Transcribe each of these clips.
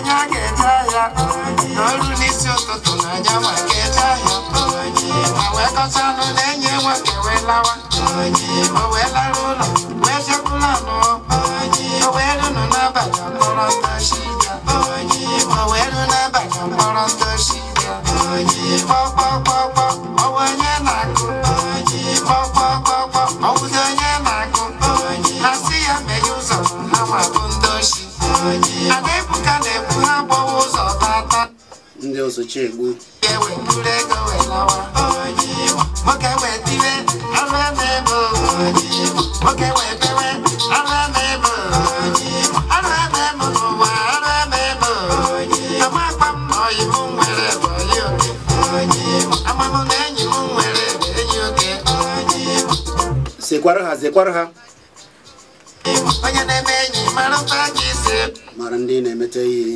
I don't know. n'ọrụ n'isi ụtụtụ n'anya ma ga-eje ahịa ma wee kọcha anụ na-enye nwoke wee lawa o wee ndị ọzọ chi egbu sekwara ha ha onye na-eme enyi mara mkpa mara ndị na-emete ihe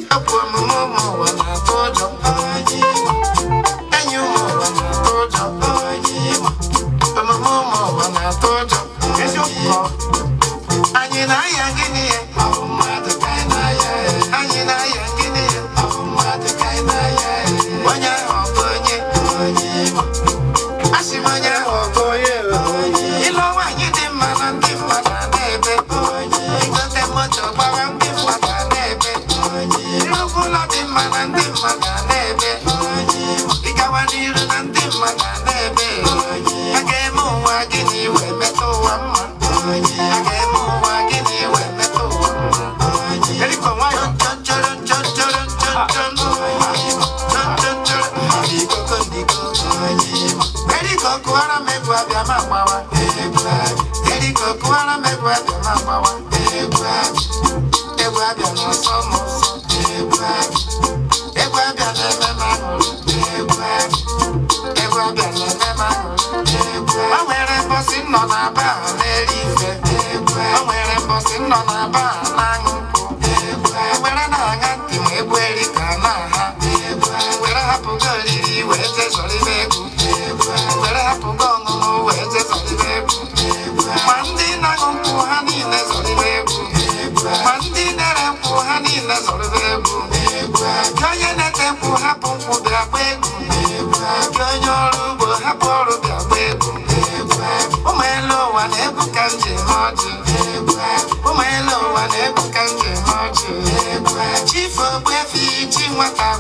anyị na-aya gịnị ya anyị na-aya gịnị ya onye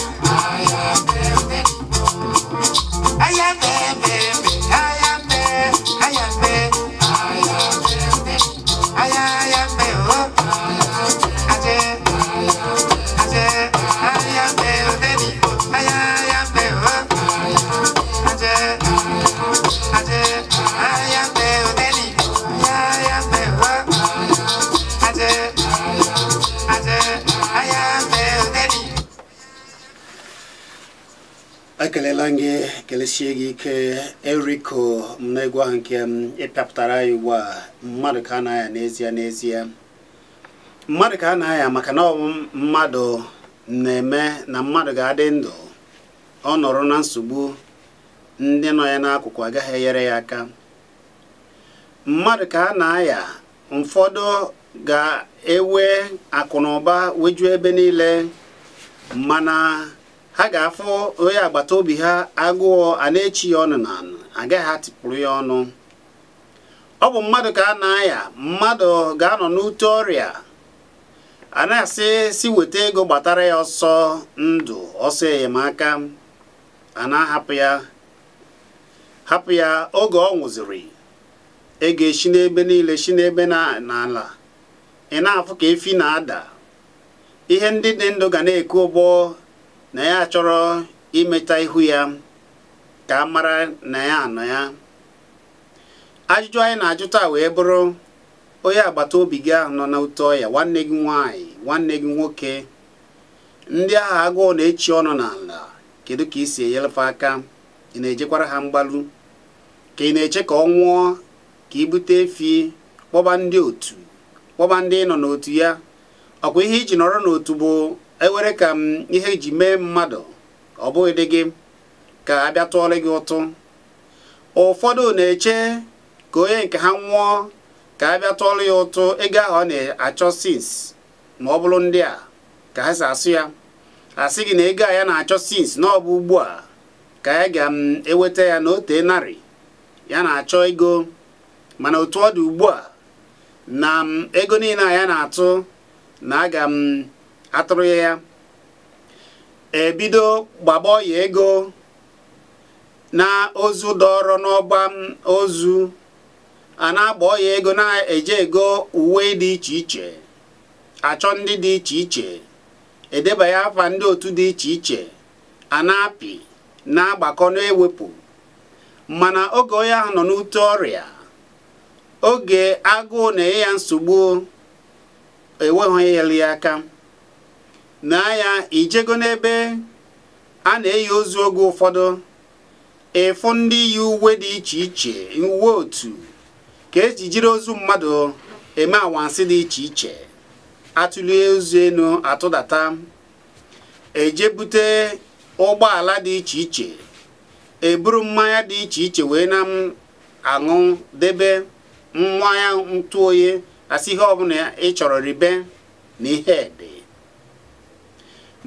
Yeah. esie gị ike eriko m n'egwu ahụ nke m um, ịpịapụtara e ya ugbu a mmadụ ka a na aya n'ezie n'ezie mmadụ ka a na aya maka na ọ mmadụ na-eme na mmadụ ga-adị ndụ ọ nọrọ na nsogbu ndị nọ ya n'akụkụ agaghị enyere ya aka mmadụ ka a na-aya ụfọdụ ga-ewe akụ na ụba wejuo ebe niile mana ha ga-afụ onye agbata obi ha agụọ a na-echi ya ọnụ na anụ agaghị atịpụrụ ya ọnụ ọ bụ mmadụ ka a na-aya mmadụ ga-anọ n'ute ọrịa a na-asị si weta ego gbatara ya ọsọ ndụ ọsọ enyemaka a na-ahapụ ya hapụ ya oge ọ nwụziri ego echi n'ebe niile shi n'ebe n'ala ị na-afụ ka efi na-ada ihe ndị dị ndụ ga na-eku ụgbọ na ya chọrọ imeta ihu ya ka a mara na ya anọ ya ajụjụ anyị na ajụta wee bụrụ onye agbata obi gị ahụ nọ na ụtọ ọya nwanne gị nwanyị nwanne gị nwoke ndị agha agụụ na-echi ọnụ n'ala kedu ka isi si enyelefe aka ị na-ejekwara ha mgbalu ka ị na-eche ka ọ nwụọ ka ibute efi kpọba ndị otu kpọba ndị nọ n'otu ya ọkwa ihe iji nọrọ n'otu bụ ewere ka m ihe ji mee mmadụ ọ bụghị dị gị ka a bịa tụọrọ gị ụtụ ụfọdụ na-eche ka onye nke ha nwụọ ka a bịa tụọrọ ya ụtụ ego ahụ ọ na-achọ sins ma ọ bụrụ ndị a ka ha si asụ ya asị gị na ego a ya na-achọ sins na ọ bụ ugbu a ka ya ga-eweta ya na ote narị ya na-achọ ego mana otu ọ dị ugbu a na ego niile a ya na-atụ na aga m atụrụ ya ya ebido gbagba ọya ego na ozu dọrọ n'ọgba ozu a na-agba ọya ego na-eje ego uwe dị iche iche achọ ndị dị iche iche ya afa ndị otu dị iche iche a na-apị na-agbakọ na-ewepụ mana oge onye ahụ nọ n'ute ọrịa oge agụụ na-enye ya nsogbu enweghị ya aka n'agha ijego n'ebe a na-eyi ozu oge ụfọdụ ịfụ ndị yi uwe dị iche iche uwe otu ka eji jiri ozu mmadụ eme anwansị dị iche iche atụlie ozu elu atụdata ejebute ụgbọala dị iche iche eburu mmanya dị iche iche wee na aṅụ debe mmanya ntụ oyi asị ihe ọbụla ị chọrọ ribe na ihe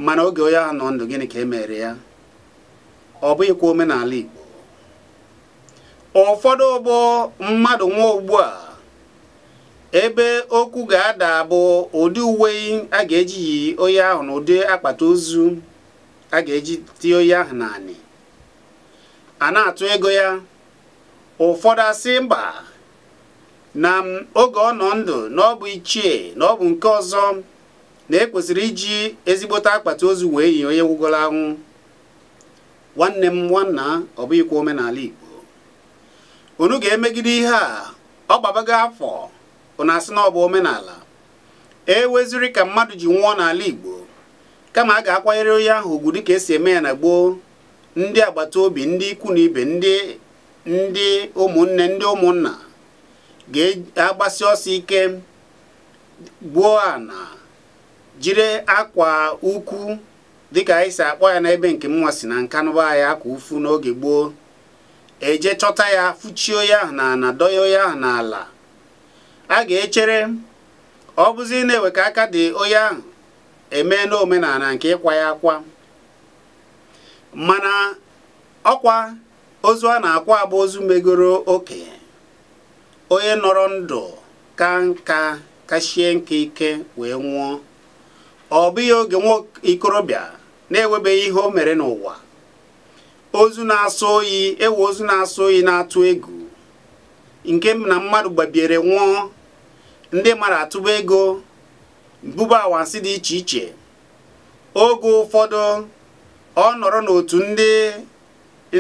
mana oge onye ahụ nọ ndụ gịnị ka e mere ya ọ bụghịkwa omenala Igbo ụfọdụ ụgbọ mmadụ nwa ugbu a ebe okwu ga-ada bụ ụdị uwe a ga-eji yi onye ahụ na ụdị akpata ozu a ga-eji tie onye ahụ naanị a na-atụ ego ya ụfọdụ asị mba na oge ọ nọ ndụ na ọ bụ ichie na ọ bụ nke ọzọ na ekwesịrị iji ezigbote akpata ozu wee yi onye gwụgoro anwụ nwanne m nwanna ọ bụghịkwa omenala Igbo onu ga-emegide ihe a ọ gbabago afọ na asị na ọ bụ omenala e weziri ka mmadụ ji nwụọ n'ala Igbo kama a ga-akwanyere onye ahụ ugwu dịka esi eme ya na gboo ndị agbata obi ndị ikwu na ibe ndị ndị ụmụnne ndị ụmụnna ga-agbasi ọsọ ike gbuo ana jiri akwa ukwu dịka anyị si akpọ ya n'ebe nke m si na nka nkanụba ahịa akwa ufu n'oge gboo eje chọta ya fụchio ya na na doyo ya n'ala a ga-echere ọ bụzi na-ewe ka aka dị onye ahụ eme n'omenala nke ịkwa ya akwa mana ọkwa ozu a na-akwa abụ ozu megoro oke onye nọrọ ndụ ka nka kachie nke ike wee nwụọ ọ bụghị oge nwa ikorobịa na enwebeghị ihe o mere n'ụwa ozu na-asọ oyi ewe ozu na-asọ oyi na-atụ egwu nke na mmadụ gbabiere nwụọ ndị mara atụba ego bụba awansị dị iche iche oge ụfọdụ ọ nọrọ n'otu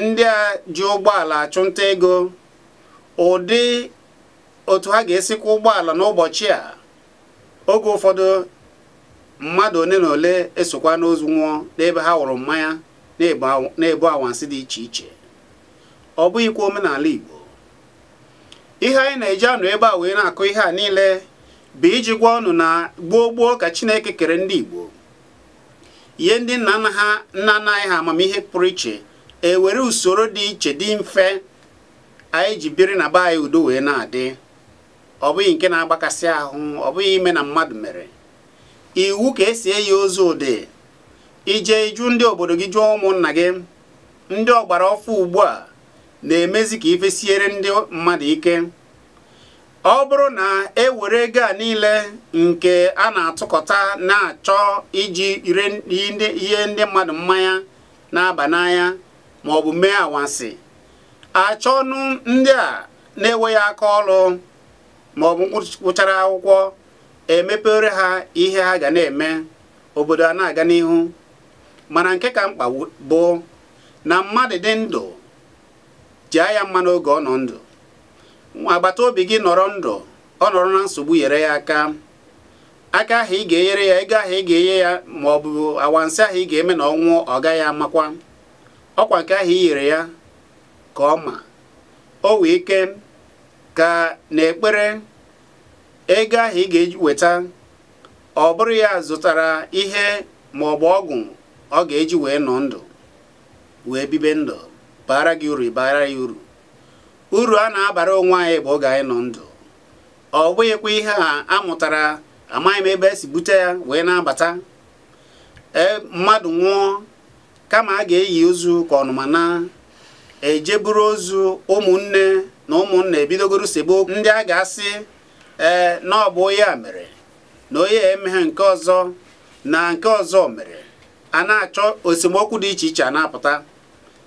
ndị a ji ụgbọala achụnta ego ụdị otu ha ga-esikwa ụgbọala n'ụbọchị a oge ụfọdụ mmadụ ole na ole esokwa n'ozu nwụọ n'ebe ha wụrụ mmanya na-ebu anwansị dị iche iche ọ bụghịkwa omenala Igbo ihe anyị na-eji anụ ebe a wee na-akụ ihe a niile bụ iji gwa ọnụ na gboo gboo ka Chineke kere ndị Igbo ihe ndị nna nna ha nna nna anyị ha amamihe pụrụ iche ewere usoro dị iche dị mfe anyị ji biri na be anyị udo wee na-adị ọ bụghị nke na-agbakasị ahụ ọ bụghị ime na mmadụ mere iwu ka esi eyi ozu ụdị ije iju ndị obodo gị jụọ ụmụnna gị ndị ọgbara ọfụ ugbu a na-emezi ka ifesiere ndị mmadụ ike ọ bụrụ na e were ego a niile nke a na-atụkọta na-achọ iji ire ihe ndị mmadụ mmanya na-aba n'anya ma ọ bụ mee anwansi achọnụ ndị a na-enweghị aka ọrụ ma ọ bụ akwụkwọ emepere ha ihe ha ga na-eme obodo a na-aga n'ihu mana nke ka mkpa bụ na mmadụ dị ndụ jia ya mma n'oge ọ nọ ndụ nwa agbata obi gị nọrọ ndụ ọ nọrọ na nsogbu yere ya aka aka ahụ ị ga-enyere ya ego ahụ ị ga-enye ya ma ọ bụ awansị ahụ ị ga-eme na ọnwụ ọ gaghị amakwa ọkwa nke ahụ i nyere ya ka ọ ma o wee ike ka na ekpere ego ahụ ị ga eweta weta ọ bụrụ ya zụtara ihe ma ọ bụ ọgwụ ọ ga-eji wee nọ ndụ wee bibe ndụ bara gị uru bara ya uru uru a na-abara onwe anyị bụ oge anyị nọ ndụ ọ bụghịkwa ihe a amụtara amaghị m ebe esi bute ya wee na-abata e, mmadụ nwụọ kama a ga-eyi ozu ka ọnụmana ejeburu ozu ụmụnne na ụmụnna ebidogoro sebo ndị a ga-asị ee na ọ bụ onye a mere na onye emeghe nke ọzọ na nke ọzọ mere a na-achọ osemokwu dị iche iche a na-apụta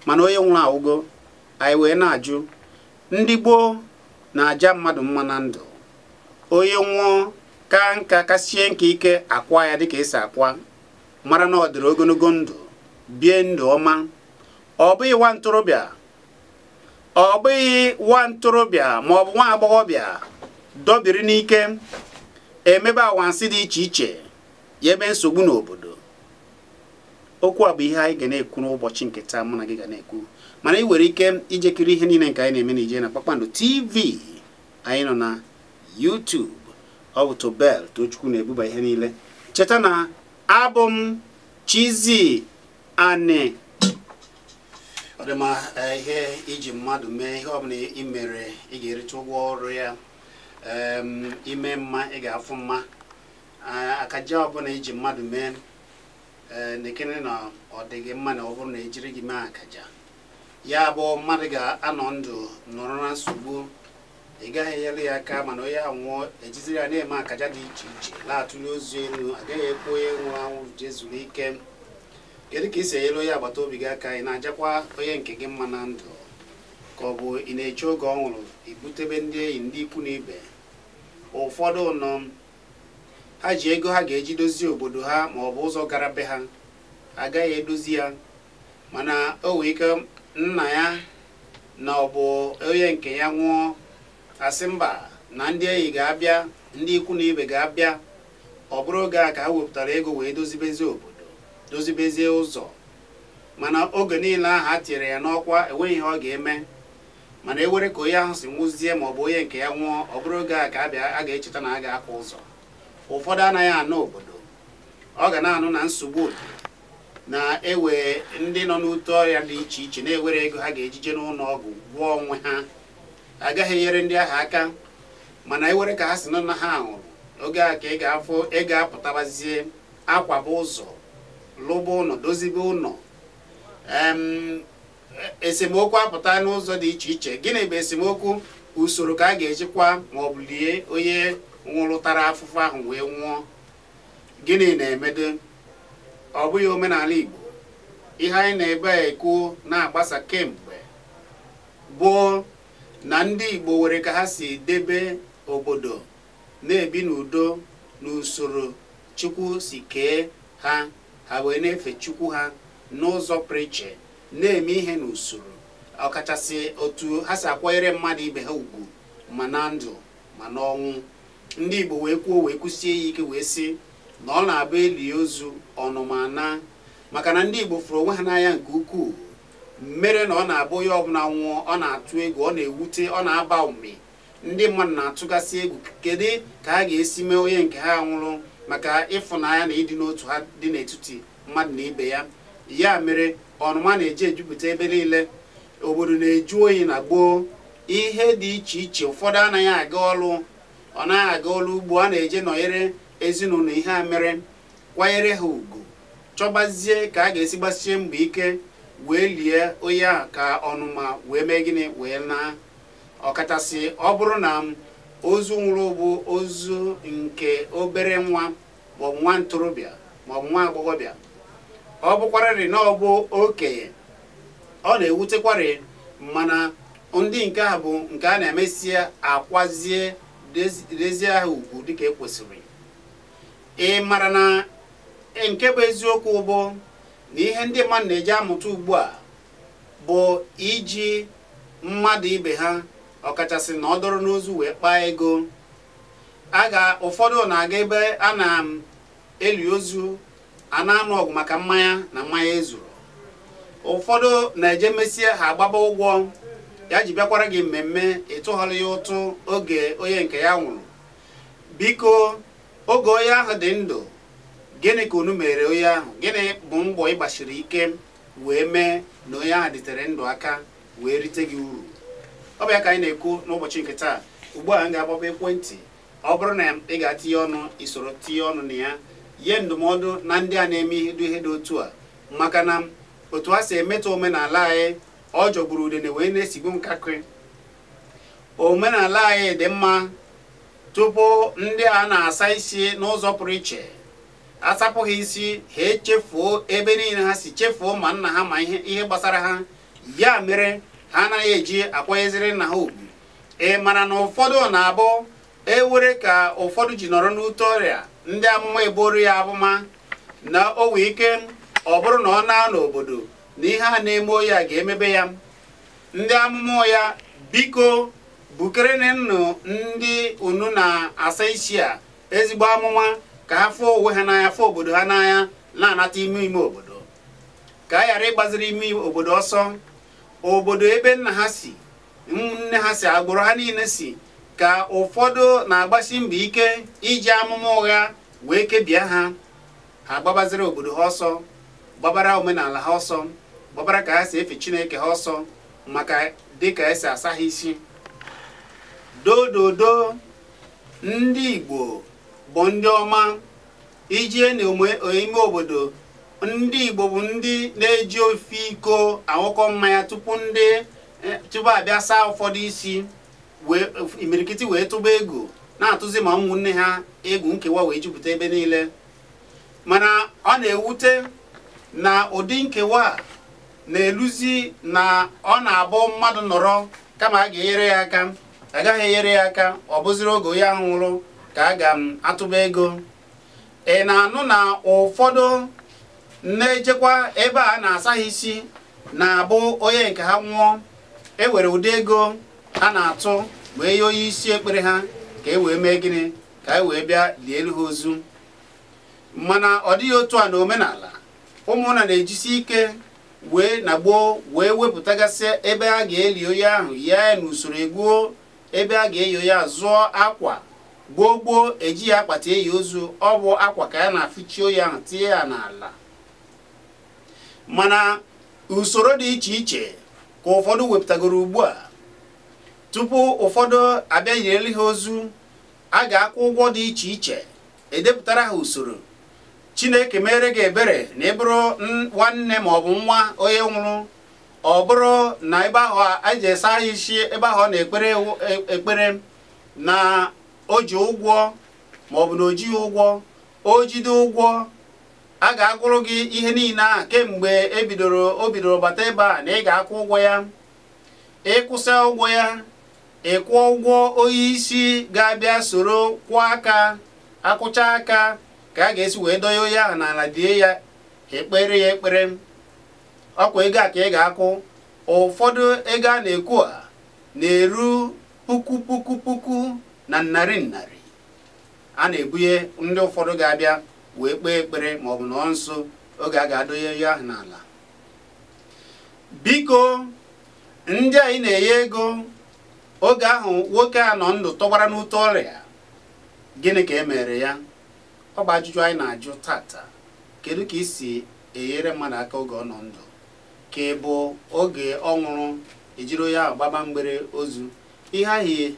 mana onye nwụrụ awụgo anyị wee na-ajụ ndị gboo na-aja mmadụ mma na ndụ onye nwụọ ka nka kasie nke ike akwa ya dịka esi akwa mara na ọ dịrị ogologo ndụ bie ndụ ọma ọ bụghị nwa ntorobịa ọ bụghị nwa ntorobịa ma ọ bụ nwa agbọghọbịa dobiri n'ike emebe anwansị dị iche iche ya ebe nsogbu n'obodo okwu a bụ ihe anyị ga na-ekwu n'ụbọchị nke taa mụ na gị ga na-ekwu mana ị nwere ike ijekiri ihe niile nke anyị na-eme na ije na kpakpando tv anyị nọ na YouTube ọ bụ Tobel Tochukwu na-ebuba ihe niile cheta na abụ m ọ dị ma eh, ihe iji mmadụ mee ihe ọ bụla ị ga-erite ụgwọ ọrụ ya ime mma ị ga-afụ mma akaja ọbụla iji mmadụ mee e, na-ekene na ọ dịghị mma na ọ bụrụ na ejiri gị mee akaja ya bụ mmadụ ga-anọ ndụ nọrọ na nsogbu ị gaghị enyere ya aka mana onye anwụọ ejiziri ya na-eme akaja dị iche iche na ozu elu agaghị ekwu onye nwụrụ anwụ jezuru ike kedu ka ị si enyere onye agbata obi gị aka ị na-ajakwa onye nke gị mma na ndụ ka ọ bụ ị na-eche oge ọ nwụrụ ibutebe ndị enyi ndị ikwu na ibe ụfọdụ nọm ha ji ego ha ga-eji dozie obodo ha ma ọ bụ ụzọ gara be ha agaghị edozi ya mana o wee ike nna ya na ọ bụ onye nke ya nwụọ asị mba na ndị enyi ga-abịa ndị ikwu na ibe ga-abịa ọ bụrụ oge a ka ha wepụtara ego wee dozibezie obodo dozibezie ụzọ mana oge niile ahụ a tinyere ya n'ọkwa enweghị ihe ọ ga-eme mana e were ka onye ahụ si nwụzie ma ọ bụ onye nke ya nwụọ ọ bụrụ oge a ka a ga-echeta na a ga-akwa ụzọ ụfọdụ anaghị anụ obodo ọ ga na-anụ na nsogbu na-ewe ndị nọ n'ute ọrịa dị iche iche na-ewere ego ha ga-ejije n'ụlọ ọgwụ gwụọ onwe ha agaghị enyere ndị ahụ aka mana ewere ka ha si nọ na ha nwụrụ oge a ka ị ga-afụ ị ga-apụtabazie akwaba ụzọ lụba ụlọ dozibe ụlọ esemokwu apụta n'ụzọ dị iche iche gịnị bụ esemokwu usoro ka a ga-ejikwa ma ọ bụ lie onye nwụrụtara afụfụ ahụ wee nwụọ gịnị na-emedo ọ bụghị omenala Igbo ihe anyị na-ebe ekwu na-agbasa kemgbe bụ na ndị Igbo nwere ka ha si debe obodo na-ebi n'udo n'usoro Chukwu si kee ha ha wee na-efe Chukwu ha n'ụzọ preche na-eme ihe n'usoro ọkachasị otu ha si akwanyere mmadụ ibe ha ugwu ma na ndụ ma n'ọnwụ ndị Igbo wee kwuo wee kwụsie ya ike wee sị na ọ na-abụ eli ozu ọnụmana maka na ndị Igbo fụrụ onwe ha n'anya nke ukwuu mere na ọ na-abụ onye ọbụla nwụọ ọ na-atụ egwu ọ na-ewute ọ na-aba ume ndị mmadụ na-atụgasị egwu kedu ka ha ga-esi mee onye nke ha nwụrụ maka ịfụnanya na ịdị n'otu ha dị n'etiti mmadụ na ibe ya ya mere ọnụma na-eji ejupụta ebe niile obodo na-eju oyi na gboo ihe dị iche iche ụfọdụ anaghị aga ọlụ ọ naghị aga ọlụ ugbo a na-eje nọnyere ezinụlọ ihe a mere kwanyere ha ugwu chọbazie ka a ga-esi gbasie mbọ ike wee lie onye a ka ọnụma wee mee gịnị wee naa ọkachasị ọ bụrụ na ozu nwụrụ bụ ozu nke obere nwa maọbụ nwa ntorobịa maọbụ nwa agbọghọbịa ọ bụkwarịrị na ọ bụ okenye ọ na-ewutekwarị mana ndị nke a bụ nke a na-emesịa akwazie dezie ahụ ugwu dịka ekwesịrị ị mara na nke bụ eziokwu bụ na ihe ndị mmadụ na-eji amụta ugbu a bụ iji mmadụ ibe ha ọkachasị na ọ dọrọ n'ozu wee kpaa ego a ga ụfọdụ na-aga ebe a na-eli ozu a na-anụ ọgụ maka mmanya na mmanya ezuru ụfọdụ na-eje mesie ha agbaba ụgwọ ya ji bịakwara gị mmemme ịtụghọrọ ya ụtụ oge onye nke ya nwụrụ biko oge onye ahụ dị ndụ gịnị ka unu mere onye ahụ gịnị bụ mbọ ịgbachiri ike wee mee na onye ahụ dịtere ndụ aka wee rite gị uru ọ bụ ya ka anyị na-ekwu n'ụbọchị nke taa ugbu a m ga-agbaba ekwentị ọ bụrụ na ị ga-atinye ọnụ isoro tinye ọnụ na ya nye ndụmọdụ na ndị a na-eme ihe dị otu a maka na otu a si emetụ omenala anyị ọ jọgburu udene wee na-esigbu nkakịrị omenala anyị dị mma tupu ndị a na-asa isi n'ụzọ pụrụ iche asapụghị isi ha echefuo ebe niile ha si chefuo ma nna ha ma ihe gbasara ha ya mere ha anaghị eji akwanyeziri nna ha ugwu ị mara na ụfọdụ na-abụ ewere ka ụfọdụ ji nọrọ n'ute ọrịa ndị amụma eboro ya abụma na o wee ike ọ bụrụ na ọ na n'obodo na ihe a na-eme ya ga-emebe ya ndị amụma ya biko bukere nnụ ndị unu na-asa isi a ezigbo amụma ka ha fụọ onwe ha n'anya fụọ obodo ha n'anya na-anata ime ime obodo ka a ghara ịgbaziri ime obodo ọsọ obodo ebe nna ha si nne ha si agbụrụ ha niile si ka ụfọdụ na-agbasi mbọ ike iji amụma ụgha wee kebie ha ha gbabaziri obodo ha ọsọ gbabara omenala ha ọsọ gbabara ka ha si efe chineke ha ọsọ maka dị ka esi asa ha isi dododo ndị igbo bụ ndị ọma ijie n'ime obodo ndị igbo bụ ndị na-eji ofe iko anwụkọ mmanya tupu ndị eh, tupu abịa saa ụfọdụ isi imirikiti wee tụba ego na-atụzi ma ụmụnne ha egwu nkewa wee jupụta ebe niile mana ọ na-ewute na ụdị nkewa na-eluzi na ọ na-abụ mmadụ nọrọ kama a ga-enyere ya aka agaghị enyere ya aka ọ bụziri oge onye ahụ nwụrụ ka a ga-atụba ego ị na-anụ na ụfọdụ na-ejekwa ebe a na-asaghị isi na-abụ onye nke ha nwụọ e nwere ụdị ego ha na-atụ bụ ihe onye isi ekpere ha ka e wee mee gịnị ka e wee bịa lie elu ha ozu mana ọ dịghị otu a na omenala ụmụnna na-ejisi ike wee na gboo wee wepụtagasị ebe a ga-eli onye ahụ ya n'usoro egbuo ebe a ga-eyi ya zụọ akwa gboo gboo eji ya akpata eyi ozu ọ bụ akwa ka ya na-afụchi onye ahụ tinye ya n'ala mana usoro dị iche iche ka ụfọdụ wepụtagoro ugbu a tupu ụfọdụ abịa yireli ha ozu a ga-akwụ ụgwọ dị iche iche edepụtara ha usoro chineke mere gị ebere na ị bụrụ nwanne ma ọ bụ nwa onye nwụrụ ọ bụrụ na ebe ahụ eji esa ha isi ebe ahụ na-ekpere e, ekpere na o ji ụgwọ ma ọ bụ na o jighị ụgwọ o jide ụgwọ a ga-agụrụ gị ihe niile a kemgbe ebidoro o bidoro bata ebe a na ị ga-akwụ ụgwọ ya ịkwụsị ụgwọ ya ịkwụ ụgwọ onye isi ga-abịa soro kwụọ aka akwụcha aka ka a ga-esi wee donye onye ahụ n'ala die ya ekpere ya ekpere ọkwa ego a ka ị ga-akwụ ụfọdụ ego a na-ekwu a na-eru puku puku puku na narị narị a na-ebunye ndị ụfọdụ ga-abịa wee kpee ekpere ma ọ bụ nọ nso oge a ga-adonye onye ahụ n'ala biko ndị anyị na-enye ego oge ahụ nwoke a nọ ndụ tọgbara n'ute ọrịa gịnị ka e mere ya ọ bụ ajụjụ anyị na-ajụ tata kedu ka isi enyere mmadụ aka oge ọ nọ ndụ ka ị bụ oge ọ nwụrụ ejiri ya gbaba mgbere ozu ihe ahụ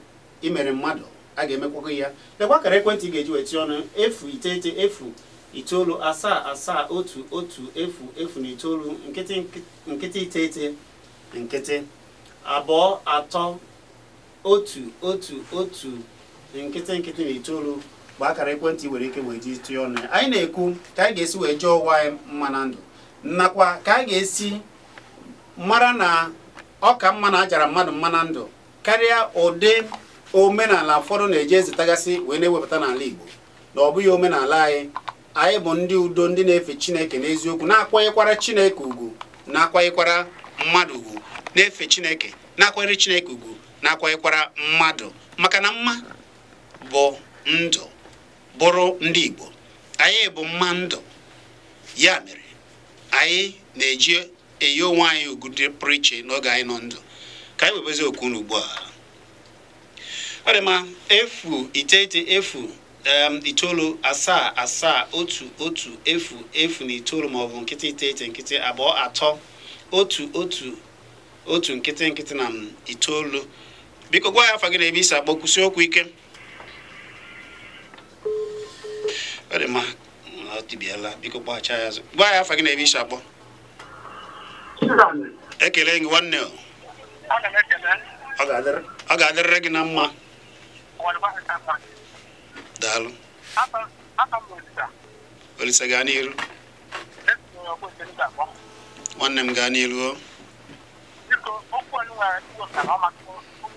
imere mmadụ a ga-emekwakwa ya lekwa kara ekwentị ga-eji weti ọnụ efu iteghete efu itoolu asaa asaa otu otu efu efu na itoolu nkịtị nkịtị iteghete nkịtị abụọ atọ otu otu otu nkịtị nkịtị na itoolu bụ akara ekwentị nwere ike wee ji tụọ ọnụ ya anyị na-ekwu ka anyị ga-esi wee jee ụwa anyị mma na ndụ nakwa ka anyị ga-esi mara na ọ ka mma na ajara mmadụ mma na ndụ karịa ụdị omenala ụfọdụ na eje ezitagasị wee na-ewepụta n'ala Igbo na ọ bụghị omenala anyị anyị bụ ndị udo ndị na-efe Chineke n'eziokwu na-akwanyekwara Chineke ugwu na-akwanyekwara mmadụ ugwu na-efe Chineke na-akwanyere Chineke ugwu na mmadụ maka na mma bụ ndụ bụrụ ndị Igbo anyị bụ mma ndụ ya mere anyị na-eji eyi onwe anyị ugwu dị pụrụ iche n'oge anyị nọ ndụ ka anyị webezi okwu n'ugbu a ọ dị mma efu iteghete efu itoolu asaa asaa otu otu efu efu na itoolu maọbụ nkịtị iteghete nkịtị abụọ atọ otu otu otu nkịtị nkịtị na itoolu biko gwa ya afa gị na ebe isi kwụsị okwu ike ọ dị gwa ya afa gị na ebe ekele gị nwanne ọ ga-adịrịrị gị na mma daalụ olise gaa n'iru nwanne m gaa n'iru o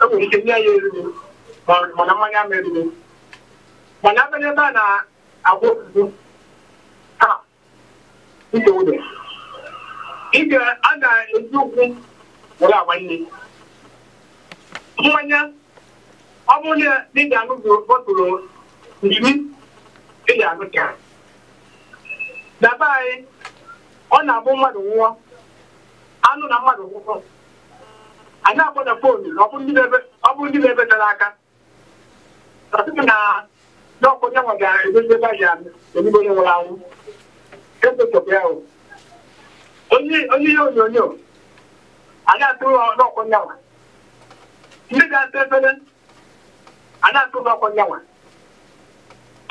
enwere ike nye mana mmanya ama eriri mana abịa ebe a na-agwa ofufu taa ije a na-eji ụkwụ were agba mmanya ọ bụrụ na na be anyị ọ na-abụ mmadụ nwụọ anụ na mmadụ nwụọ anyị akpọ na foonu ọ bụrụ ndị na-ebe tara aka na ọkụ nyanwa ga-edozi ebe anyị ebibo onye nwụrụ anwụ esochapụ ya onye ihe onyonyo anyị atụrụ n'ọkụ nyanwa ndị ga-asa efere anyị atụrụ n'ọkụ nyanwa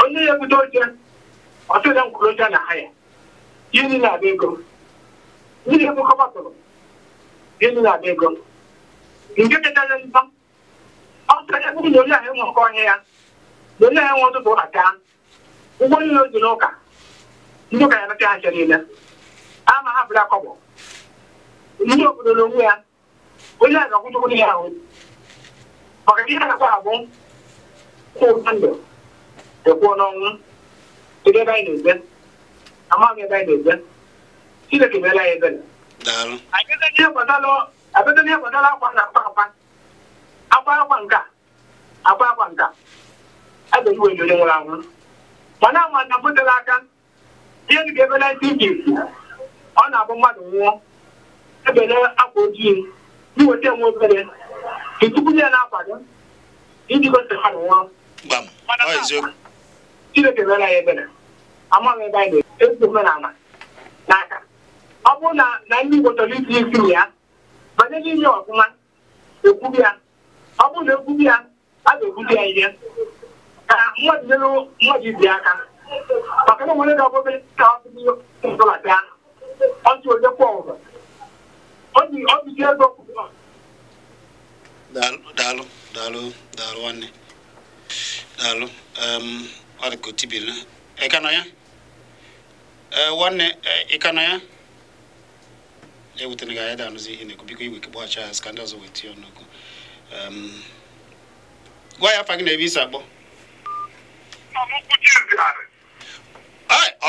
onye ya ebute oche ọtụrụ nkwụrụ oche na ha ya yiri na-abịa ego ndị ga-ebukọ batụrụ yiri na-abịa ego nzọ nke onye ya na onye enwe ụtụtụ niile n'ụka ndị ụka ya bata aja niile ama ha bụrụ akọbọ ndị obodo na onwe ya onye ga ahụ maka ihe a na-akwa e ya ebere ebedona ewedara akwa na akwa akwa akwa akwa nka akwa akwa nka ebe iwe nyonye nwere anwụ mana ama na bụtere aka ihe ka ebe na ndị ijipt ọ na-abụ mmadụ nwụọ ebele akwa ojii iweta enwe obere tupu ya na akwado gị iji gosi mmadụ nwụọ chineke mere ebere amaghị ebe anyị na omenala n'aka ọ bụrụ na ndị igbo chọrọ iti isi ya banye n'ime ọfụma ya ọ bụrụ na egwubi ya a ga-egwubi ya ihe ka mmadụ nyere mmadụ ibi aka maka na nwere ga ka ọ dị dị onye kwụ ọgụ ọ ọ ego daalụ daalụ daalụ nwanne daalụ ọ dị ka otibiri ị ka ya nwanne ị ka ya ewutena gị anyị danụzi ihe na-ekwu biko iwe kegbachi ahụ ka ndị ọzọ wee tinye ọnụgụ gwa ya afa na ebe isi akpọ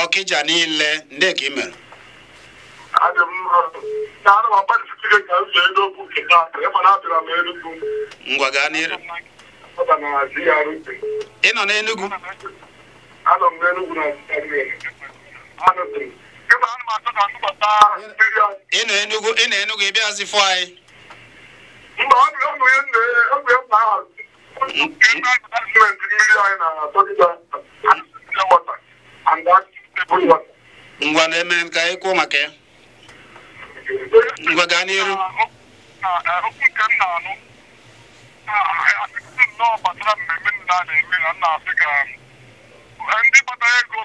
ọkịja niile ndị ka ị mere ngwa gaa n'iru ị nọ n'enugwu ị Enugu ị na Enugu ị bịazi fụ anyị ngwa na-eme maka ya ngwa gaa n'iru ndị ego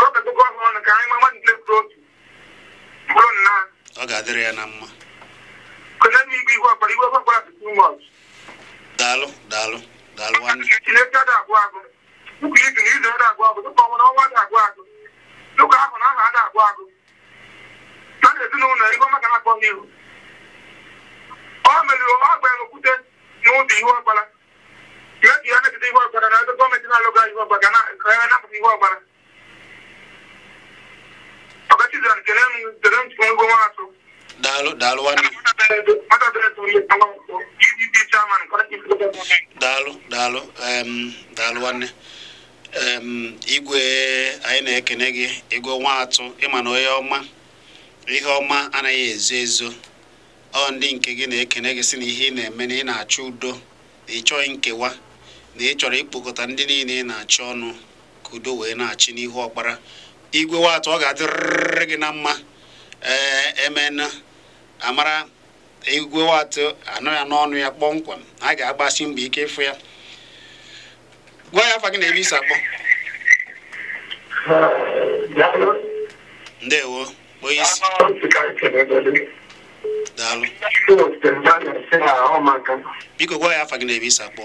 kọpịtụkọ ha ọnụ ka anyị mama ndị otu nna ọ ga-adịrị ya na mma kene m igwe ihu ọkpara ihu ọkpara tụ too much daalụ daalụ daalụ nwanne agụ ụkwụ na izu ada agwụ agụ ọnwa agụ ahụ na ada na maka na-akpọ ọ meriri ọ gbanyere okwute n'ụzọ ihu ọkpara mebie na ebe gọọmenti na-alụga ihu ga na ihu daalụ daalụ nwanne daalụ daalụ daalụ nwanne igwe anyị na-ekene gị ego nwa ịma na onye ọma ihe ọma anaghị ezo ezo ọ ndị nke gị na-ekene gị sị na ihe ị na-eme na ị na-achọ udo na ị chọghị nkewa na ị chọrọ ikpokọta ndị niile ị na-achọ ọnụ ka udo wee na-achị n'ihu ọkpara igwe ọ ga-adịrịrị gị na mma ee emena amara igwe watụ anọ ya n'ọnụ ya kpọmkwem a ga-agbasi mbọ ike ịfụ ya gwa ya afa gị na-eri isi akpọ ndewo onye isi daalụ biko gwa ya afa gị na-eri isi akpọ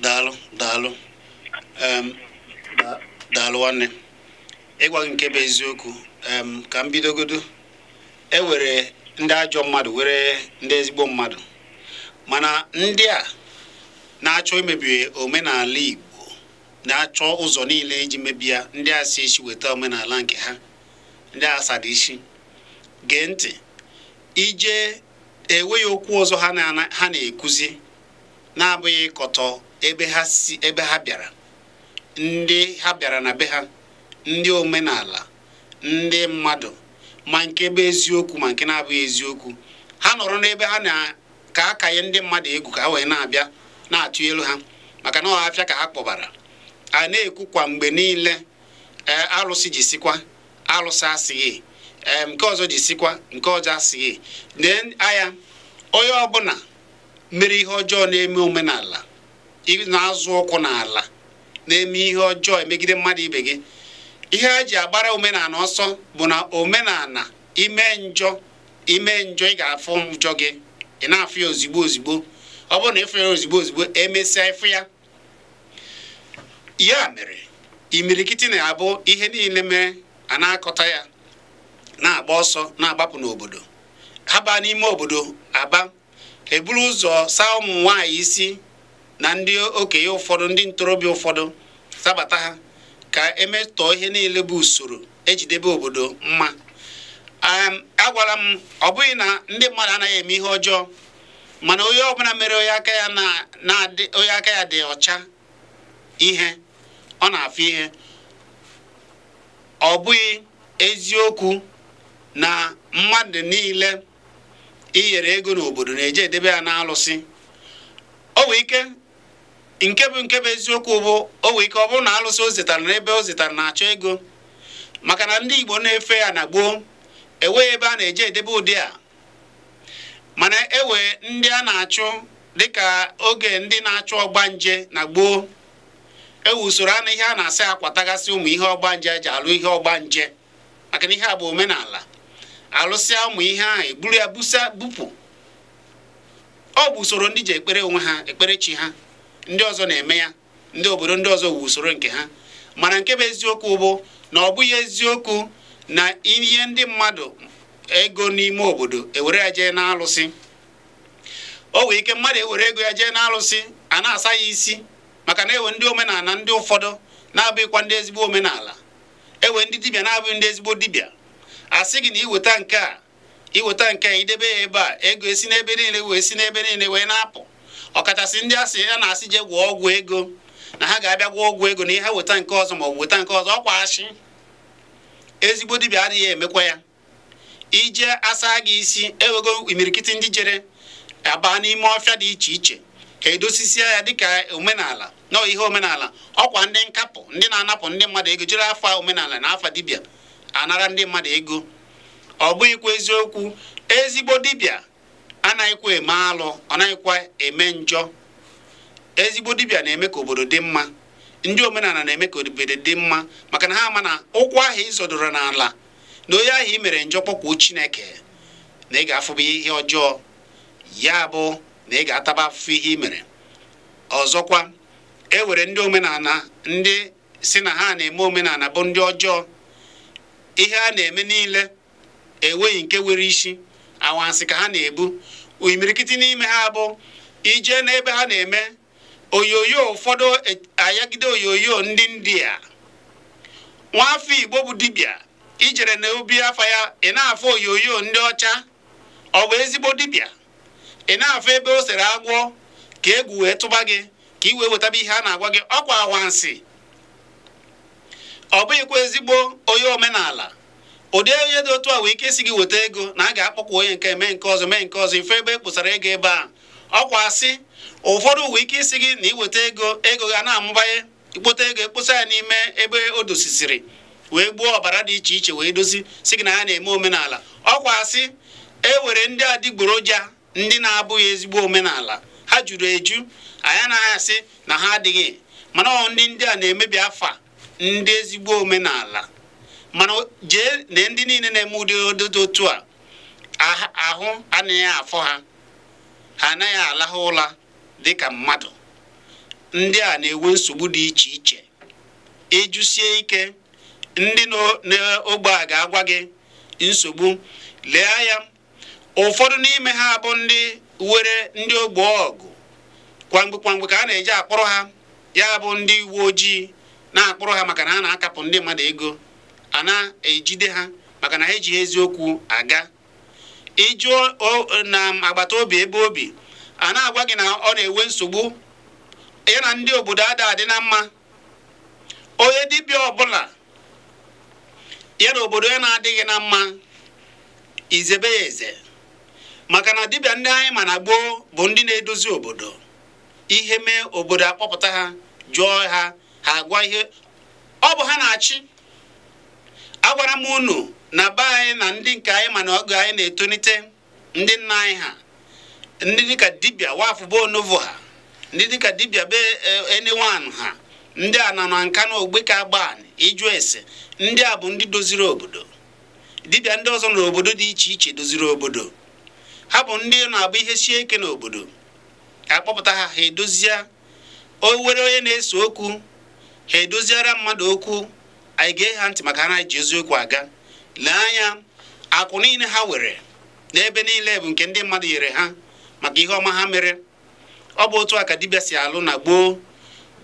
daalụ daalụ daalụ nwanne ịgwa nke bụ eziokwu ka m bidogodo e were ndị ajọ mmadụ were ndị ezigbo mmadụ mana ndị a na-achọ imebi omenala Igbo na-achọ ụzọ niile iji mebi ndị a si isi weta omenala nke ha ndị asada isi gee ntị ije enweghị okwu ọzọ ha na-ekuzi na-abụghị ịkọtọ ebe ha bịara ndị ha bịara na be ha ndị omenala ndị mmadụ ma nke bụ eziokwu ma nke na-abụghị eziokwu ha nọrọ n'ebe ha na ka a nye ndị mmadụ egwu ka ha wee na-abịa na-atụ elu ha maka na ọhafịa ka ha kpọbara a na-ekwu kwa mgbe niile e, alụsị jisikwa alụsị asịghị nke ọzọ ji sikwa nke ọzọ asịghị lee anya onye ọbụla mere ihe ọjọọ na-eme omenala na-azụ ụkwụ n'ala na-eme ihe ọjọọ emegide mmadụ ibe gị ihe a ji agbara omenala ọsọ bụ na omenala ime njọ ime njọ ị ga-afụ njọ gị ị na-afụ ya ozigbo ozigbo ọ bụrụ na ịfụ ya ozigbo ozigbo emesịa ịfụ ya ya mere imirikiti na-abụ ihe niile mere a na-akọta ya na-agba ọsọ na-agbapụ n'obodo ha baa n'ime obodo aba eburu ụzọ saa ụmụ nwaanyị isi na ndị okenye ụfọdụ ndị ntorobịa ụfọdụ sabata ha ka emetọọ ihe niile bụ usoro ejidebe obodo mma agwara m ọ bụghị na ndị mmadụ anaghị eme ihe ọjọọ mana onye ọbụla mere onye aka ya aka ya dị ọcha ihe ọ na-afụ ihe ọ bụghị eziokwu na mmadụ niile inyere ego n'obodo na-eje edebe ya n'alụsị o nwee ike nke bụ nke bụ eziokwu bụ o nwee ike ọ bụrụ na alụsị o zetara n'ebe o zetara na-achọ ego maka na ndị Igbo na-efe ya na gboo enweghị ebe a na-eje edebe ụdị a mana ewe ndị a na-achụ dịka oge ndị na-achụ ọgba nje na gboo ewu usoro anụ ihe a na-asị akwatagasị ụmụ ihe ọgbanje eji alụ ihe ọgba nje maka na ihe a bụ omenala alụsị ụmụ ihe ahụ eburu ya busa bupụ ọ bụ usoro ndị ji ekpere onwe ha ekpere chi ha ndị ọzọ na-eme ya ndị obodo ndị ọzọ wu usoro nke ha mana nke bụ eziokwu bụ na ọ bụghị eziokwu na ihe ndị mmadụ ego n'ime obodo ewere ya jee n'alụsị o nwee ike mmadụ ewere ego ya jee n'alụsị a na-asa ya isi maka na ewe ndị omenala ndị ụfọdụ na-abụghịkwa ndị ezigbo omenala ewe ndị dibịa na-abụghị ndị ezigbo dibịa asị gị na iweta nke a iweta nke a idebe ya ebe a ego esi n'ebe niile wee si n'ebe niile wee na-apụ ọkachasị ndị asị ya na-asị jee gwụọ ọgwụ ego na ha ga-abịa gwụọ ọgwụ ego na ihe weta nke ọzọ ma ọ bụ weta nke ọzọ ọkwa asị ezigbo dibịa adịghị emekwa ya ije asa gị isi ewego imirikiti ndị jere abaa n'ime ọfịa dị iche iche ka edosisia ya dịka omenala na ihe omenala ọkwa ndị nkapụ ndị na-anapụ ndị mmadụ ego jere afa omenala na afa dibịa anara ndị mmadụ ego ọ bụghịkwa eziokwu ezigbo dibịa anaghịkwa eme alụ ọ naghịkwa eme njọ ezigbo dibịa na-eme ka obodo dị mma ndị omenala na-eme ka obodo dị mma maka na ha ama na ụkwụ ahụ ịzọdoro n'ala na onye ahụ i mere njọ kpọkwuo Chineke na ị ga-afụba ihe ọjọọ ya bụ na ị ga-ataba afụfụ ihe i mere ọzọkwa e were ndị omenala ndị si na ha na-eme omenala bụ ndị ọjọọ ihe a na-eme niile enweghị nke nwere isi anwansị ka ha na-ebu imirikiti n'ime ha bụ ije n'ebe ha na-eme oyoyo ụfọdụ e, ayagide oyoyo ndị india nwafọ igbo bụ dibịa ijere na obi afọ ya ị na-afụ oyoyo ndị ọcha ọ bụ ezigbo dibịa ị na-afụ ebe o sere agwọ ka egwu wee tụba gị ka i wee wetaba ihe a na-agwa gị ọkwa anwansị ọ bụghịkwa ezigbo onye omenala ụdị onye dị otu a wee ike isi gị weta ego na a ga-akpọkwa onye nke mee nke ọzọ mee nke ọzọ ife ebe e kpụsara ego ebe a ọkwa asị ụfọdụ wee ike isi gị na iweta ego ego ga na-amụbanye ikpota ego ekposa ya n'ime ebe o dosisiri wee gbuo ọbara dị iche iche wee dozi si gị na ha na-eme omenala ọkwa asị e were ndị adịgboroja ndị na-abụghị ezigbo omenala ha juru eju anya na-asị na ha adịghị mana ndị ndị a na-emebi afa ndị ezigbo omenala mana jee na ndị niile na-eme ụdị ododo otu a ahụ anaghị afọ ha ha anaghị alahụ ụla ka mmadụ ndị a na-enwe nsogbu dị iche iche ịjụsie ike ndị n'ogbe a ga-agwa gị nsogbu lee ya ụfọdụ n'ime ha bụ ndị were ndị ogbe ọgụ kwamgbe kwamgbe ka a na-eji akpọrọ ha ya bụ ndị uwe ojii na-akpụrụ ha maka na a na-akapụ ndị mmadụ ego a na-ejide ha maka na ha ejighị eziokwu aga ịjụọ na agbata obi ebe obi a na-agwa gị na ọ na-enwe nsogbu ya na ndị obodo ada adị na mma onye dibịa ọbụla ya na obodo ya na-adịghị na mma izebe ya eze maka na dibịa ndị anyị ma na gboo bụ ndị na-edozi obodo ihe mee obodo akpọpụta ha jụọ ha ha agwa ihe ọ bụ ha na-achị agwara m unu na be anyị na ndị nke anyị mana ọgụ anyị na-etolite ndị nna anyị ha ndị dịka dibịa wafụ bụ onovo ha ndị dịka dibịa be eh, enewan ha ndị a na nka na ogbe ka agban ịjụ ese ndị a bụ ndị doziri obodo dibịa ndị ọzọ n'obodo dị iche iche doziri obodo ha bụ ndị na-agba ihe sie ike n'obodo akpọpụta ha ha edozie o were onye na-ese okwu ha edoziara mmadụ okwu anyị gee ha ntị maka ha ji eziokwu aga lee anya akụ niile ha were n'ebe niile bụ nke ndị mmadụ nyere ha maka ihe ọma ha mere ọ bụ otu a ka dibịa si alụ na gboo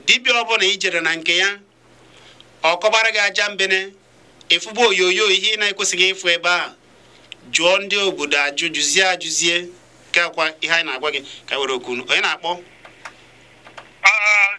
dibịa ọbụla ijere na nke ya ọ kọbara gị aja mbene ịfụba e onyonyo ihe ị na-ekwesịghị ịfụ ebe a jụọ ndị obodo ajụjụzie ajụzie nke akwa ihe anyị na-agwa gị ka e were okwu onye na-akpọ ah,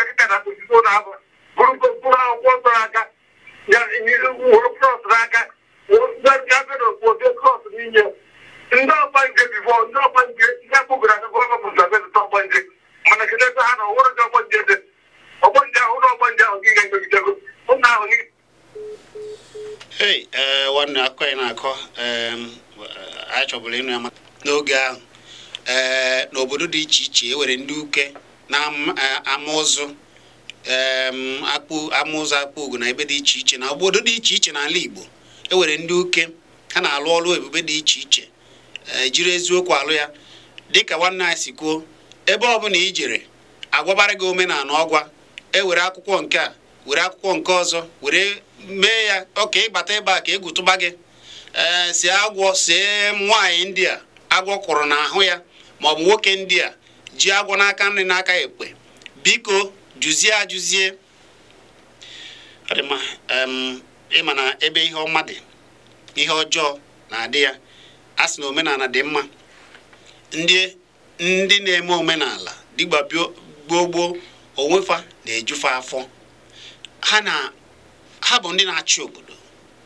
obodo dị iche iche ewere ndị uke na amụzụ e, akpụ amụzụ akpụ ugo na ebe dị iche iche na obodo dị iche iche n'ala Igbo ewere ndị uke ha na-alụ ọrụ ebube dị iche iche e, jiri eziokwu alụ ya dịka nwanne anyị si kwuo ebe ọbụla i jere agwabara gị omenala ọgwa ewere akwụkwọ nke a were akwụkwọ nke ọzọ were mee ya ọka ịbata ebe a ka egwu tụba gị e, ee si agwọ see nwaanyị ndị a agwọ kwụrụ n'ahụ ya bụ nwoke ndị a ji agwọ n'aka nri n'aka ekpe biko jụzie ajụzie ịma na ebe ihe ọma dị ihe ọjọọ na-adị ya a sị na omenala dị mma ndị na-eme omenala dịgba gboo onwefa na-ejufe afọ ha ha bụ ndị na-achị obodo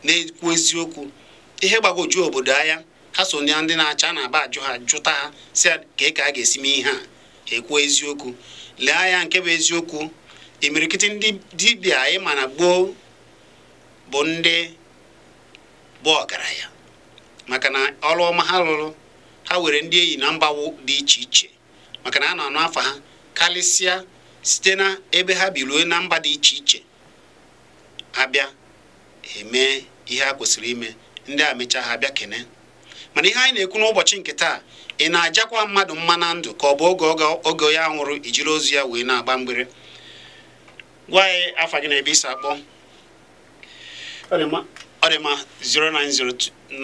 na-ekwu eziokwu ihe gbagoju obodo anya ha so ndị na-acha na-aba ajụ ha jụta ha si ka ka a ga-esi mee ihe a ekwuo eziokwu lee anya nke bụ eziokwu imirikiti e ndị dibịa anyị ma na gboo bụ ndị bụ ọgaranya maka na ọrụ ọma ha rụrụ ha were ndị enyi na mba dị iche iche maka na a na-anụ afa ha karịsịa site na ebe ha biruo na mba dị iche iche abịa eme ihe a kwesịrị ime ndị a mechaa ha bịa kene mana ihe anyị na-ekwu n'ụbọchị nke taa ị na-ajakwa mmadụ mma na ndụ ka ọ bụ oge oge ya nwụrụ ijiri ozu ya wee na-agba mgbere gwa anyị afa gị na ebe isi akpọ ọ dị ma 09097711009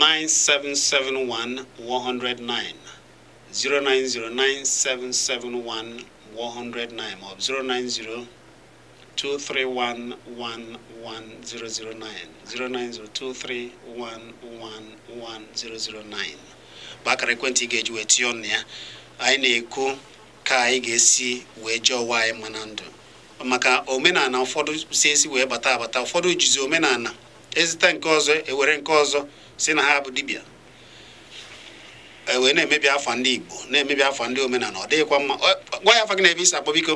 09097711009 ma ọ bụ 090 09023111009 bụ akara ekwentị ị ga-eji wee tinye ọnụ ya anyị na-ekwu ka anyị ga-esi wee jee ọwa anyị mma na ndụ maka omenala ụfọdụ si esi wee bata abata ụfọdụ jizi omenala ezita nke ọzọ ewere nke ọzọ si na ha bụ dibịa wee na-emebi afa ndị Igbo na-emebi afa ndị omenala ọ dịghịkwa mma gwa ya afa gị na ebe isi akpọ biko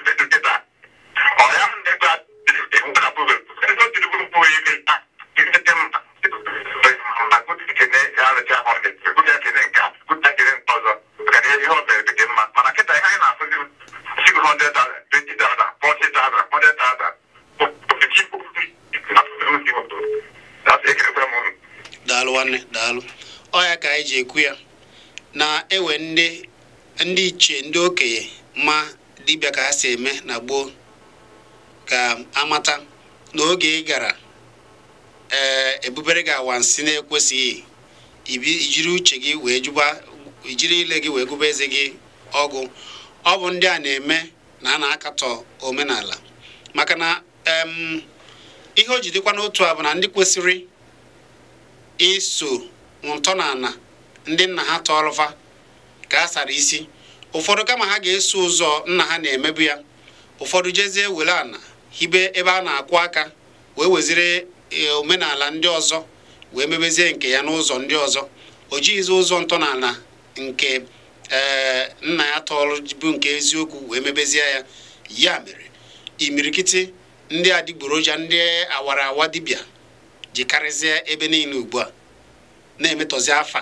ji ekwu ya na-ewe ndị iche ndị okenye ma dibịa ka ha si eme na gboo ka amata na oge ị gara ee eh, ebubere gị awansị na-ekwesịghị ijiri uche gị wee jụba ijiri ile gị wee gụba eze gị ọgụ ọ bụ ndị a na-eme na a na-akatọ omenala maka na ihe o jidekwa n'otu a bụ na ndị kwesịrị iso ntọala ndị nna ha tọọlụfa ka a sara isi ụfọdụ kama ha ga-eso ụzọ nna ha na-emebu ya ụfọdụ jezie were ana hibe ebe a na-akwụ aka wee weziri e, omenala ndị ọzọ wee mebezie nke ya n'ụzọ ndị ọzọ o jighịzi ụzọ ntọala nke e, nna ya tọọlụ bụ nke eziokwu wee mebezie ya ya mere imirikiti ndị adịgboroja ndị awara awa dibịa ji ebe niile ugbu a na-emetọzi afa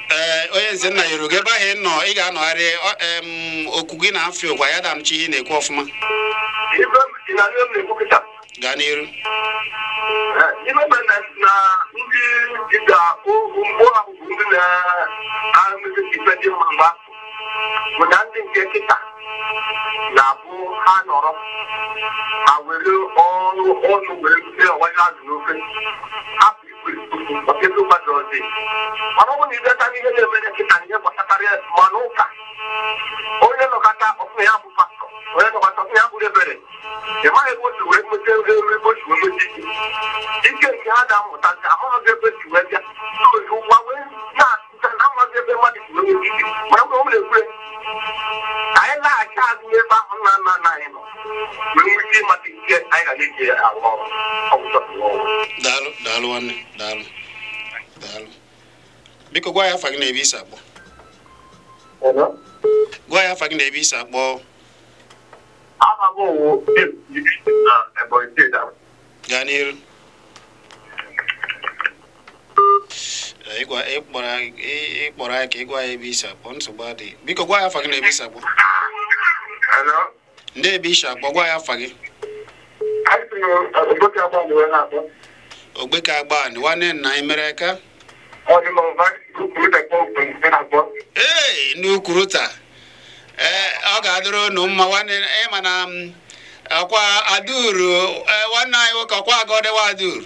Eh, onye nze nna yoruba ebe ahụ ị nọ ị ga-anọgharị okwu gị na afọ ụgwa ya chi ihe na-ekwu ọfụma gaa n'iru eh, ibe na bụ ndị na ndị na-abụ ha nọrọ ha were ọrụ ọnụ wee azụ ọtụtụ mmadụ ọzi mana ọ bụrụ na ibeta n'ihe na-eme na nkịta na ihe gbasatara mmanụ ụka onye nọkọta ọfụna ya bụ pastọ onye nọkọta ọfụna ya bụrụ ebere ị maghị ebe otu wee mete ebe osi wee mete ike nke ha na-amụta nke amaghị ebe wee bịa wee na-atụ amaghị ebe mmadụ ụlọ m na-ekwure anyị laghachi azụ n'ebe ahụ nna nna nna anyị nọ nwere ike ịmata ike anyị ga na-eji arụ ọrụ daalụ daalụ nwanne daalụ daalụ biko gwa ya afa gị na-ebe isi akpọ gwa ya afa na-ebe isi akpọ gaa n'iru ịkpọrọ anyị ka ị gwa ya ebe isi akpọ nsogbu adịghị biko gwa ya afa gị na ebe isi akpọ ndị ebe isi akpọ gwa ya afa gị ogbeke agba ni nwanne nna anyị mere aka ee ndị n'ukwuru taa ee ọ ga-adịrị unu mma nwanne ịma na akwa aduru e, nwanne anyị nwoke ọkwa agọdewa aduru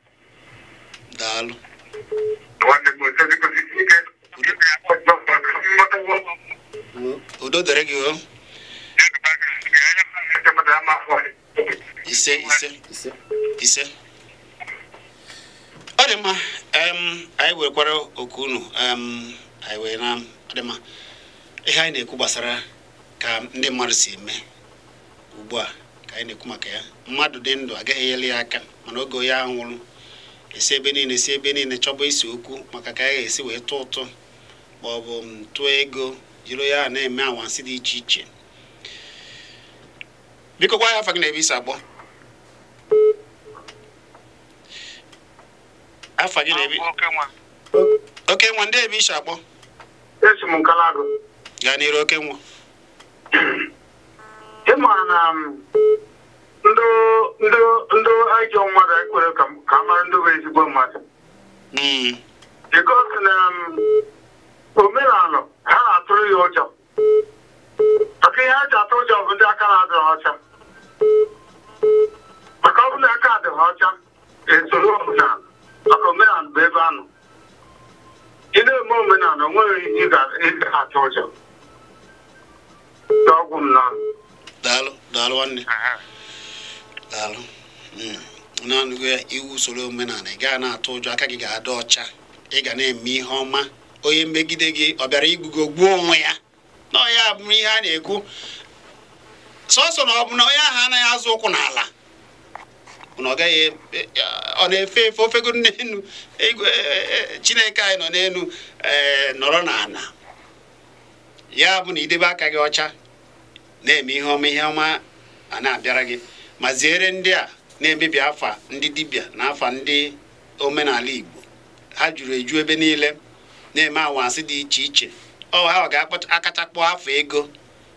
daalụ udo dịrị gị ise ise ise ọ dị mma anyị werekwara oku unu anyị wee na ọ dị mma ihe anyị na-ekwu gbasara ka ndị mmadụ si eme ugbu a ka anyị na-ekwu maka ya mmadụ dị ndụ agaghị ya aka mana oge onye esi ebe niile si ebe niile chọba isi okwu maka ka a ga-esi wee tụ ụtụ ma ọ bụ tụọ ego jiri ya na-eme anwansi dị iche iche biko gwa ya afa gị na ebe isi agbọ afa gị na ebe oke nwa ndị ebe isi agbọ esi m gaa n'iru oke nwa maara na um, ndị ndị ajọ mmadụ ekwere ka um, a mara ndị bụ ezigbo mmadụ because na omenala ha na-atụrụ ya ụjọ maka ihe ha atụ ụjọ bụ ndị aka na-adịghị ọcha maka ọ bụ na aka adịghị ọcha esoro na maka omenala bụ ebe anụ. nọ ị na-eme omenala onweghị ihe ị ịdị atụ ụjọ n'ọgwụ m na daalụ daalụ nwanne daalụ hmm. naanụgo iwu usoro omenala ị gaa na-atụ ụjọ aka gị ga-adị ọcha ị ga na-eme ihe ọma onye megide gị ọ bịara igbugo gbuo onwe ya na bụ ihe a na-ekwu sọsọ na ọ bụ na onye ahụ anaghị azụ ụkwụ n'ala ọ gaghị e, e, e, ọ na-efe efe ofego n'elu chineke anyị nọ n'elu nọrọ n'ala ya bụ na idebe aka gị ọcha na-eme ihe ọma ihe ọma a na-abịara gị ma ziere ndị a na-emebi afa ndị dibịa na afa ndị omenala Igbo ha juru eju ebe niile na-eme anwansị dị iche iche ọ ha ga-akachakpọ afọ ego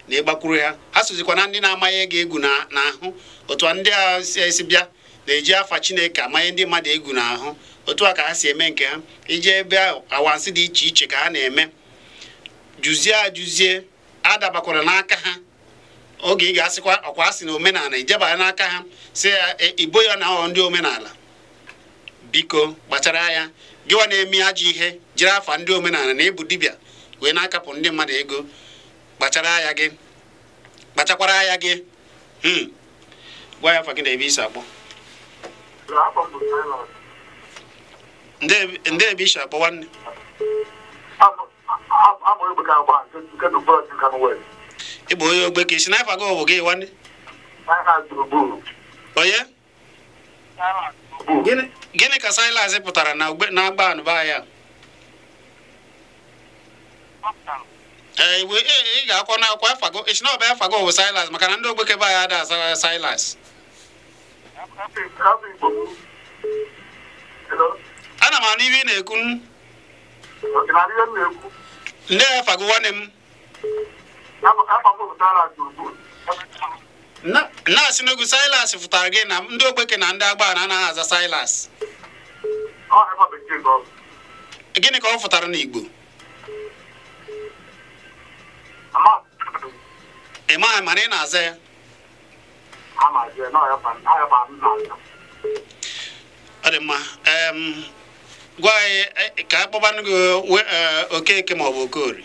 na ịgbakwuru ha ha sozikwa na ndị na-amaghị ego egwu n'ahụ otu ndị a si bịa na-eji afa Chineke amanye ndị mmadụ egwu n'ahụ otu a ka ha si eme nke ha iji ebe anwansị dị iche iche ka ha na-eme jụzie ajụzie adabakwara n'aka ha oge ị ga-asịkwa ọkwa asị na omenala ijebanye n'aka ha si ya igbo ya na ndị omenala biko kpachara ya gịwa na-eme ajọ ihe jiri afa ndị omenala na ịbụ dibịa wee na-akapụ ndị mmadụ ego kpachara anya gị kpachakwara anya gị gwa ya afa gị na ebe isi akpọ ndị ebe isi akpọ nwanne ị bụ onye ogbe ka isi naifa gị bụ gị nwanne onye gịnị ka silas pụtara na agba anụba ya ee e, e, ị ga-akwọ na akwọ afago isi na ọba afago bụ silas maka na ndị ogbekebe anyị ada asara uh, silas ana m anụ ihe ị na-ekwu ndị afago nwanne m na n'ugwu Silas fụtara gị na ndị ogbeke na ndị anaghị aza Silas gịnị ka ọ fụtara n'Igbo ị maghị mana ị na-aza ya ọ dị mma gwa anyị eh, ka a kpọbanụ gị eh, Okeke maọbụ okori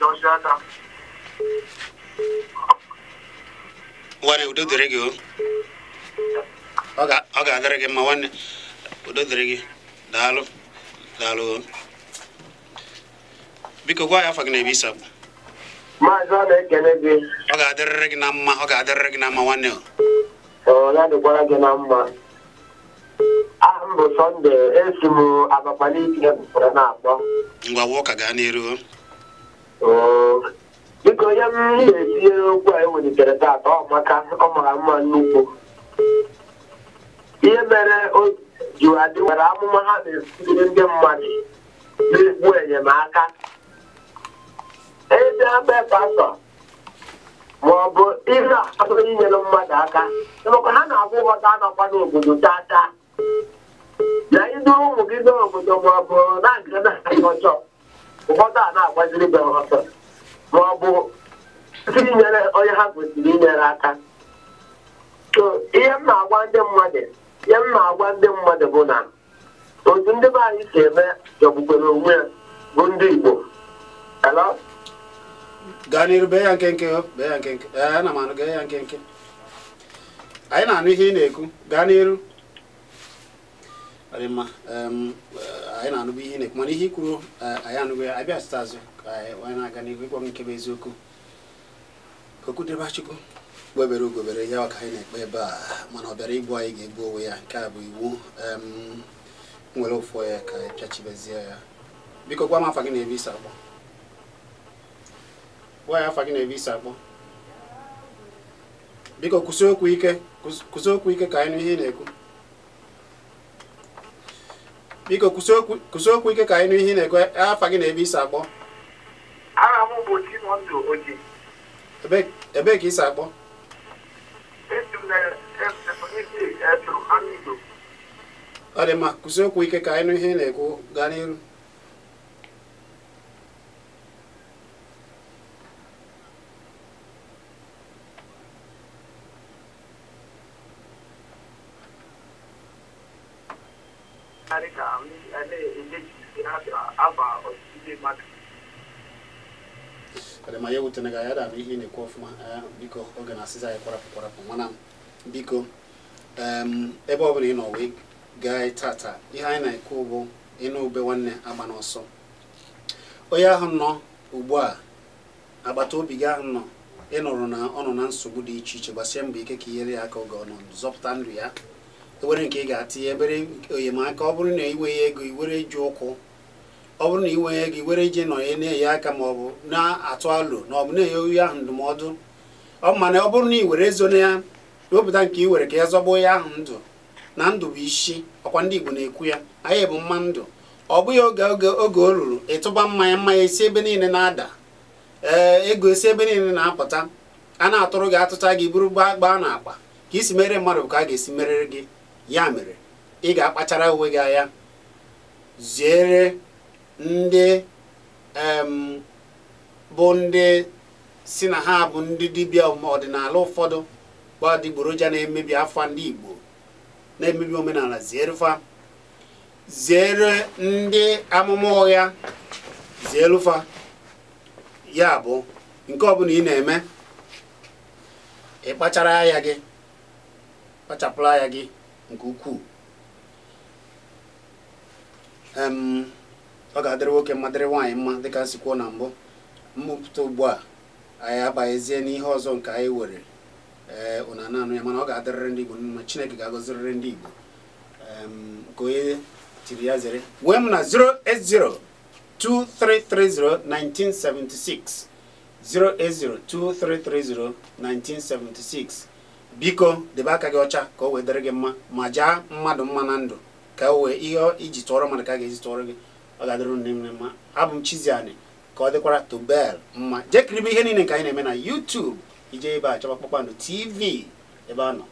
Georgia. nwanne udo dịrị gị ọ ga-adịrị gị mma nwanne udo dịrị gị daalụ daalụ biko gwa ya afọ gị na ebe isi abụ maazị ọ na-ekele gị ọ ga-adịrịrị gị na mma ọ ga-adịrịrị gị na mma nwanne ọ ya dịkwara gị na mma ahụ bụ sọnde esi m abakpali itinye bụkwara na-akpọ ngwa wụọ ka gaa n'iru biko ya m na-etinyere okwu a ewelitere taata ọ maka ọ mara mma nnukwu ihe mere o ji nwere amụma ha na-esiri ndị mmadụ n'egwu enyemaka ede be pastọ ma ọ bụ ihe inyere mmadụ aka maka ha na-abụ ụghọta anọkwa n'obodo tata na idu ụmụ gị n'obodo ma ọ bụ na nke na-achọ ụfọdụ a na-agbaziri be ọsọ ma ọ bụ siri nyere onye ha kwesịrị inyere aka so ihe m na-agwa ndị mmadụ ihe m na-agwa ndị mmadụ bụ na otu ndị be anyị si eme jọgbukwere onwe ya bụ ndị Igbo gaa n'iru bee ya nkenke bee ya nkenke ee ana m anụ gee ya nkenke anyị na-anụ ihe ị na-ekwu gaa n'iru ọ dị mma anyị na-anụbụ ihe na-ekwu mana ihe ikwuru e, anyị anụbụ ya abịa site azụ ka anyị na-aga n'ihu ịkpọ nke bụ eziokwu okwu dịba chukwu gbebere ugobere ya ka anyị na-ekpe ebe a mana ọ bịara igbu anyị ga-egbu onwe ya nke a bụ iwu nwere ụfọ ya ka anyị pịachibezie ya biko gwa m afa gị na-ebe isi akpọ gwa ya afa gị na-ebe isi akpọ biko kwụsị okwu ike kwụsị okwu ike ka anyị n'ihe ihe ị na-ekwu biko kwụsị okwu ike ka anyị nụ ihe na-ekwe e, afa gị na ebe isi akpọ aha m bụ Chimọndụ Oji ebee ka isi akpọ ọ dị mma kwụsị okwu ike ka anyị nụ ihe na-ekwu gaa n'iru aba ọtụtụ ndị mmadụ adama m anya ga gị da abụ ihe na-ekwu ọfụma eh, biko oge na-asịza anyị kwarapụ kwarapụ mana biko ebe ọ bụla ị nọ wee gaa tata ihe anyị na-ekwu bụ ịnụ ube nwanne agba n'ọsọ onye ahụ nọ ugbu a agbata obi gị ahụ nọ ị nụrụ na ọ nọ na nsogbu dị iche iche gbasie mbọ ike ka inyere ya aka oge ọ zọpụta ndụ ya ewere nke ị ga-atinye ebere enyemaka ọ bụrụ na iwe ya ego iwere ju ụkwụ ọ bụrụ na iwe gị were ije nọnye na-enye aka ma ọ bụ na-atụ alụ na ọ bụ na-enye oyi ahụ ndụmọdụ ọ mana ọ bụrụ na ị were ezo na ya wepụta nke i were ka ya zọgbuo ya ahụ ndụ na ndụ bụ isi ọkwa ndị Igbo na-ekwu ya anyị bụ mma ndụ ọ bụghị oge oge oge o ruru ịtụba mmanya mmanya esi ebe niile na-ada ee ego esi ebe niile na-apụta a na-atụrụ gị atụcha gị buru gbaa gbaa na akpa ka isi mere mmadụ ka a ga-esi merere gị ya mere ị ga-akpachara uwe gị anya ziere ndị bụ ndị si na ha bụ ndị dibịa ọdịnala ụfọdụ gba adịgboroja na-emebi afa ndị Igbo na-emebi omenala zierufa ziere ndị amụma ụgha zierufa ya bụ nke ọbụla ị na-eme ịkpachara anya gị kpachapụrụ anya gị nke ukwuu ọ ga-adịrị nwoke mma dịrị nwaanyị mma dịka nsi kwuo na mbụ mmụpụta ugbu a anyị abaghịzie n'ihe ọzọ nke anyị were ee eh, ụna naanụ ya mana ọ ga-adịrịrị ndị Igbo mma Chineke ga-agọzirịrị ndị Igbo nke onye tiri ya zere wee m na 08023301976 08023301976 biko debe aka gị ọcha ka o wee dịrị gị mma ma jaa mmadụ mma na ndụ ka o wee ihe iji tụọrọ mmadụ ka a ga-eji tụọrọ gị ọ ga-adịrụ nne m mma abụ m Chiziani ka ọ dịkwara Tobel mma jee ihe niile nke anyị na-eme na YouTube ije ebe a chọba Kpakpando TV ebe a nọ